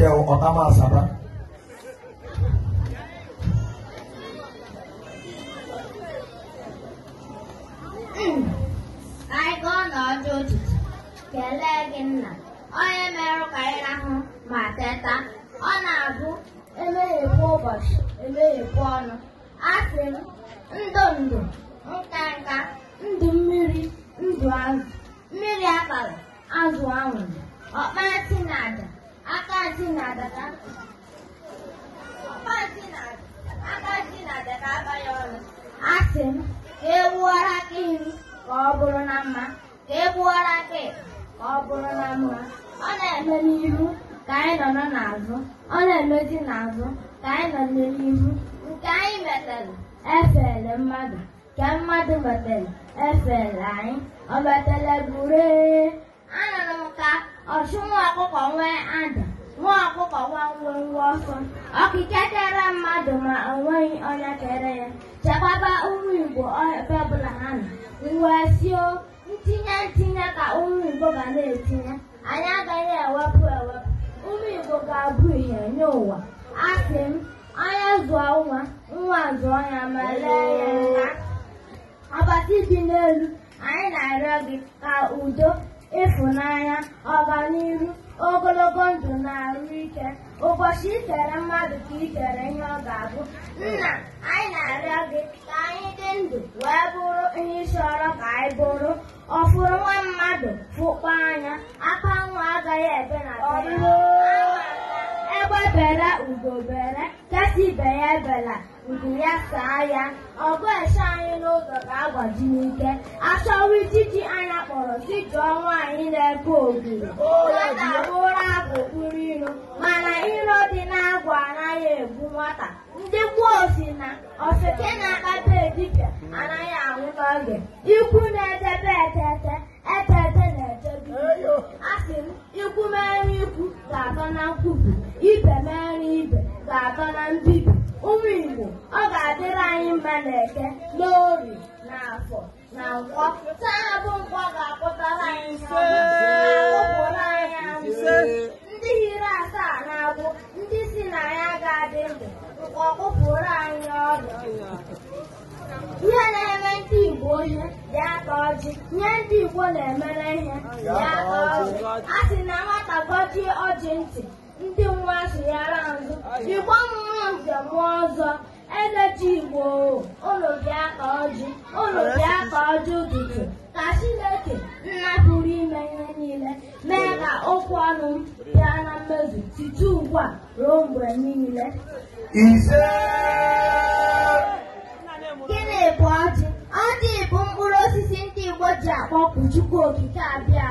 que é o Otama Sabra. Anyị gụọ na ọjọ ojiji, kelee gị nna, onye merụ ka anyị rahụ ma teta, ọ na-abụ emeghepụ ụbọchị, emeghepụ ọnụ. Asị m, ndụ ndụ, nka nka, ndụ mmiri, ndụ azụ, mmiri abalị, azụ anwụrụ, ọkpa eti na aja. Agadi na-adaka aba ya ọnụ asị m ka egbuwara aka m ka ọ bụrụ na mma ka ka ọ bụrụ na mma ọ na-eme n'ihu ka anyị nọ n'azụ ọ na-emezi n'azụ ka anyị nọ n'ihu nke anyị metere efere mmadụ nke mmadụ metere efere anyị o metere gburuee anụrụ m ka ọchụnwa ọkụkọ nwee ada nwụrụ ọkụ ọkike kere mmadụ ma o nweghị onye kere ya chekwaba ụmụ Igbo ebe ọbụla ha nọ wee sio ntinye ntinye ka ụmụ Igbo ga na-etinye anyị agaghị ewepụ ewepụ ụmụ Igbo ga-abụ ihe nye ụwa asị m onye zụọ nwa nwa zụọ ya ma lee ya nka ọbasi n'elu anyị na-arịọ gị ka udo ịfụnanya ọganihu ogologo ndụ na arụ ike ụbọchị ikere mmadụ ka ikere ihe ọ ga-abụ nna anyị na-arịọ gị ka anyị dị ndụ wee bụrụ ihe ị chọrọ ka anyị bụrụ ọfụrụ nwa mmadụ fụkpa anya aka nwa agaghị ebe na egbe bere ugo bere kesi ibe ya ebela nku ya saa ya ọgụ eche anyị n'ụzọ ga-agbaji n'ike achọwa mụrụ dịka ọnwa anyị na-ebe ogiri nwata abụrụ abụ bụkpụrụ iro mana iro dị na-agwa anaghị egbu nwata ndị gboo na ofeke na-akpata edipịa anaghị anwụta oge ikwu na-edebe etete etete na-edebe a m ikwu mere ikwu ga-atọ na nkwubi ibe mere ibe ga-atọ na mbibi ụmụ Igbo ọ ga-adịrị anyị mma na eke n'obi na afọ na nkwọ taa bụ nkwọ ga-apụtara anyị ụpụrụ anyị ndị asaa na-abụ ndị si na ya ga-adị ndụ nkwọ anyị ọrụ. ihe na-eme ndị Igbo ihe dị aka ọjị nye ndị Igbo na-emere ihe dị aka ọjị a sị na nwata gọjie ọjị ntị ndị nwa sụyara nzụ igbo mmụọ njem ọzọ eleji igbo ụlọ ka ọjị ụlọ ka ọjị ụtụtụ ka chineke nna pụrụ ime ihe niile mee ka okwu ọnụ m bịa na mmezu site ugbu a ruo mgbe niile gịnị bụ ọjị ọjị bụ mkpụrụ osisi ndị igbo ji akpọpụ chukwu okike abịa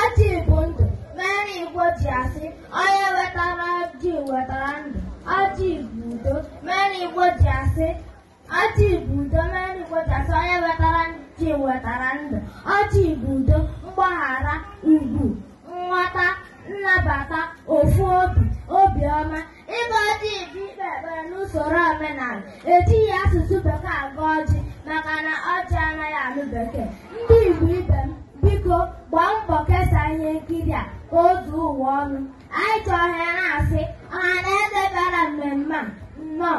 ọjị bụ ndụ mere igbo ji asị onye wetara ọchị bụ udo mmeri kpochasị onye wetara chi wetara ndụ ọchị bụ udo mgbaghara ugwu nghọta nnabata ofu obi obiọma ịba ọjị bụ ikpe ekpere n'usoro omenala ejighị asụsụ bekee aga ọjị maka na ọjị anaghị anụ bekee ndị Igbo ibe m biko gbaa mbọ kesaa ihe nkiri a ka o zuo ụwa ọnụ anyị chọrọ ya na-asị ọha na eze bịara mmemme a nnọọ